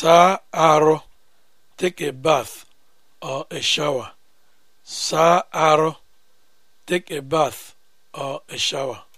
saa arụ take a bath or a shower saa arụ take a bath or a shower